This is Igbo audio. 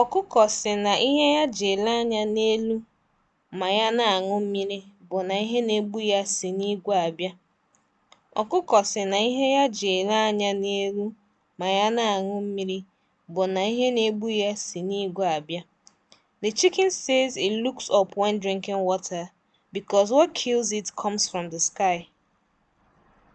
Ọkụkọ sị na ihe ya ji ele anya n'elu ma ya na-aṅụ mmiri bụ na ihe na-egbu ya si n'igwe abịa. Ọkụkọ sị na ihe ya ji ele anya n'elu ma ya na-aṅụ mmiri bụ na ihe na-egbu ya si n'igwe abịa. The chicken says it looks up when drinking water because what kills it comes from the sky.